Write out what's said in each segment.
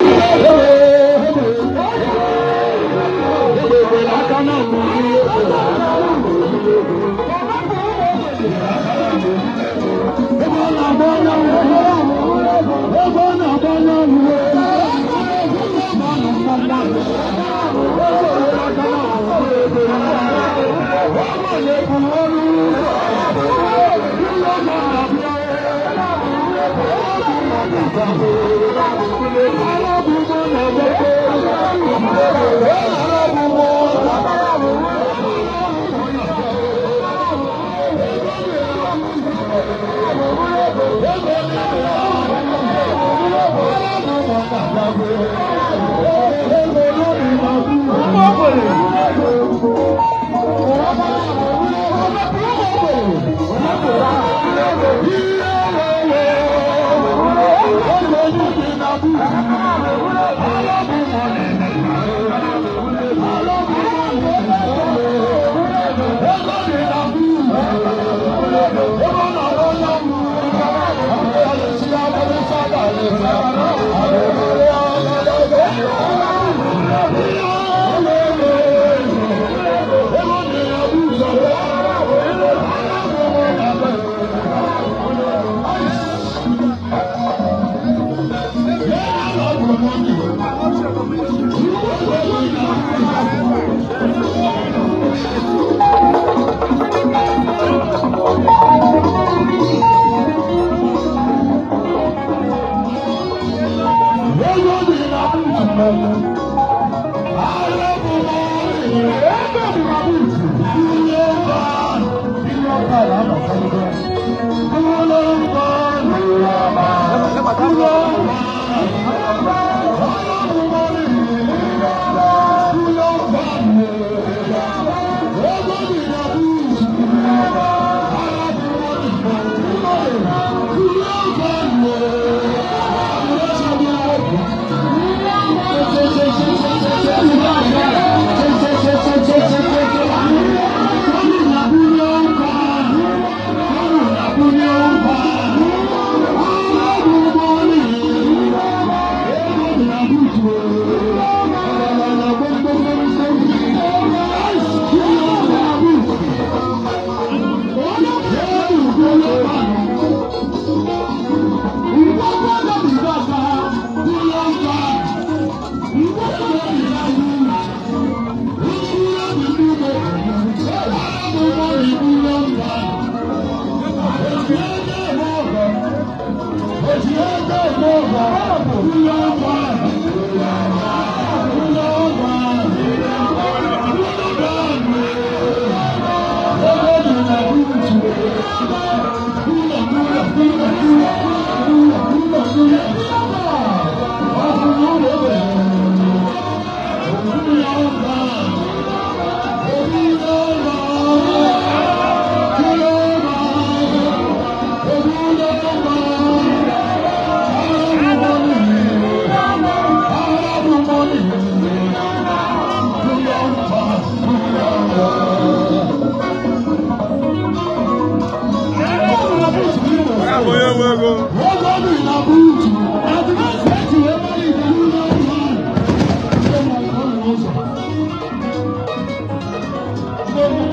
Vamos, nego, vamos! I'm Thank you.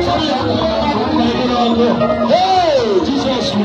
Hey, Jesus, we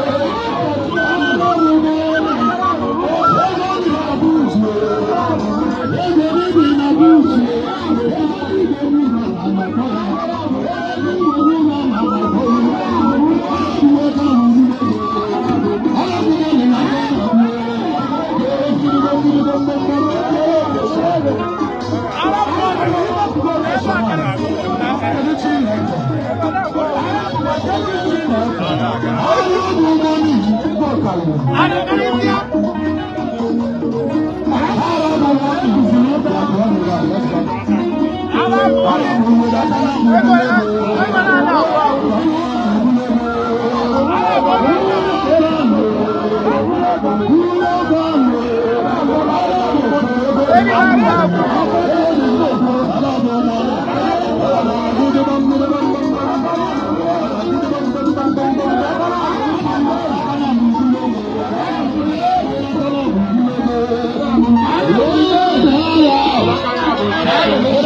you.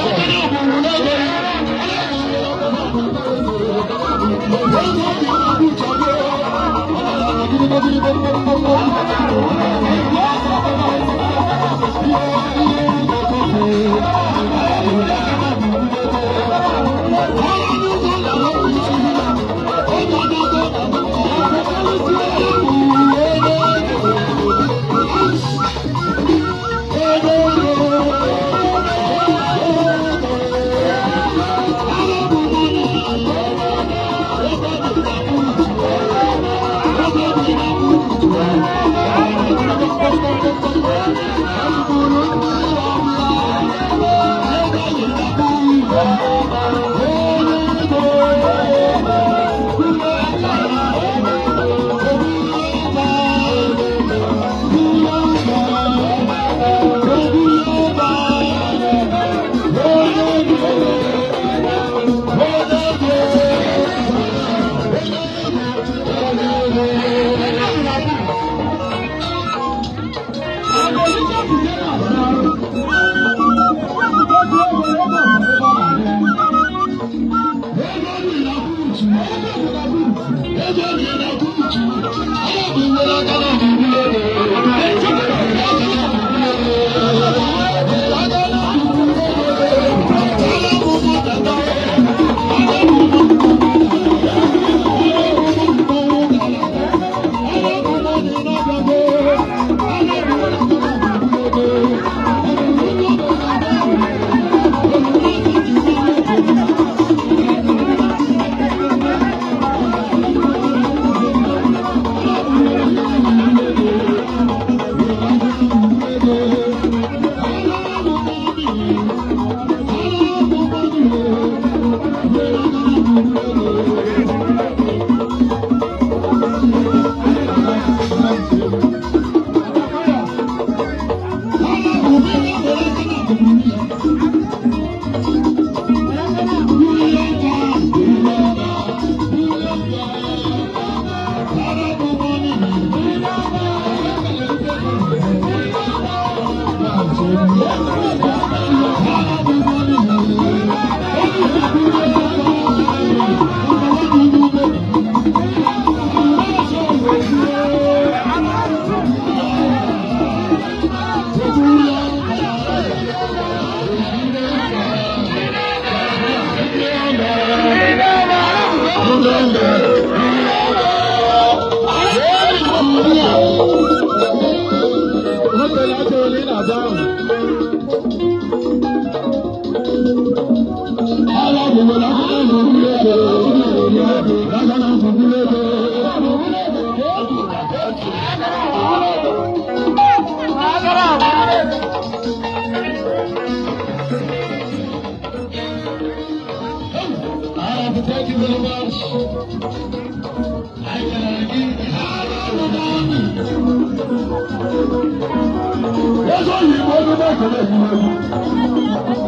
Lọ́sọ̀ yìí kò ní bá kẹlẹ̀ yìí lẹ́nu.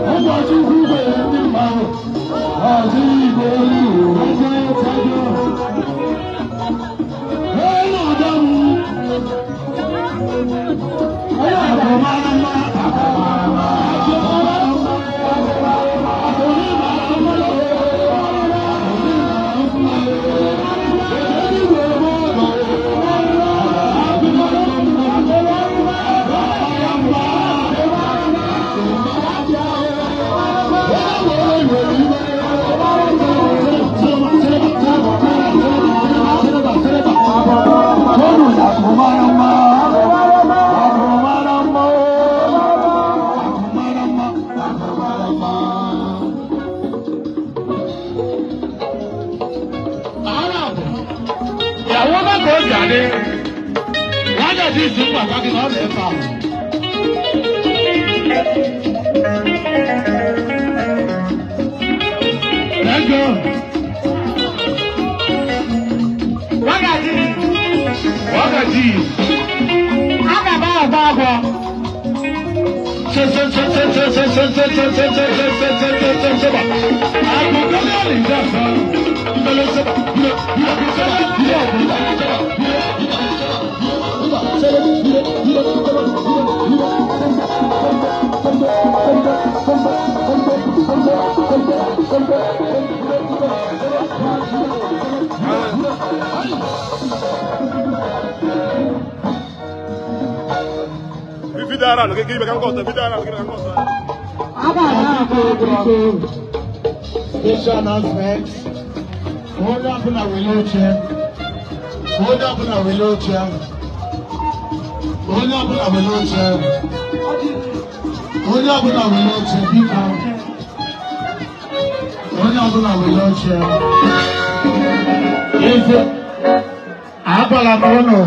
Wọ́n bá tún kú bẹ̀rẹ̀ ní ìmáwò. Àti ìgbò orí ìròyìn ṣe é tẹ́jọ́. Bẹ́ẹ̀ náà dáhùn. Ẹ̀yà àgbọ̀ máa ń lọ. àwọn mọ́tò jáde wọ́n jẹ́ ti sùn pàtàkì náà lè fà. ẹjọ́ wákàtí wákàtí àgàbà àgbà àgbà. Agbègbè onye che gribe can costa, vidaran, che can onye ọbụla were oche eze agbala m ụnụ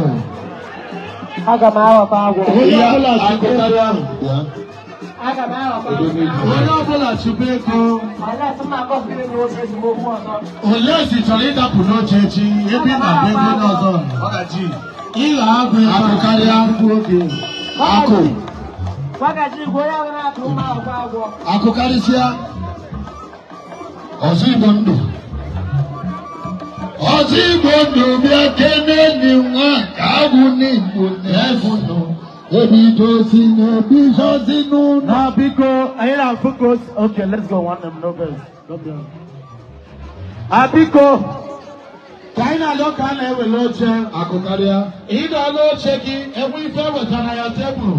aga m aghọkwa agwụ onye ọbụla chụbe ego onye ọbụla chụbe ego ole si chọrọ ịdapụ n'oche echi ebe ị na-abụ ego onye ọzọ ịghọ agụ akụ karịa mkpu oge akụ akụ karịsịa ọsọ igbo ndụ ọsọ igbo ndụ bịa kene enyi nwa ka agwụ n'igbo na-efu nọ ebidosi na ebidosi n'ụlọ. na biko anyị na-afụ close okay let's go one name no vex no vex. abiko ka anyị na-alụ ka a na-ewere oche akụkarịa. ịdọla oche gị enwe ife ewetara ya tebụl.